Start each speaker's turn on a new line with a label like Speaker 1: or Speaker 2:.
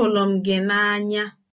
Speaker 1: Ahụrụ m gị n'anya